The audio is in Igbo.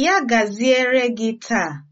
Ya gaziere gị taa.